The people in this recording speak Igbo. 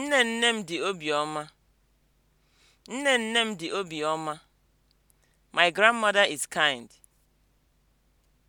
Nne nne m dị obiọma. Nne nne My grandmother is kind.